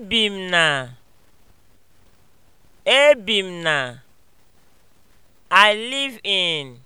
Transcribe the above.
Ebi m m na I live in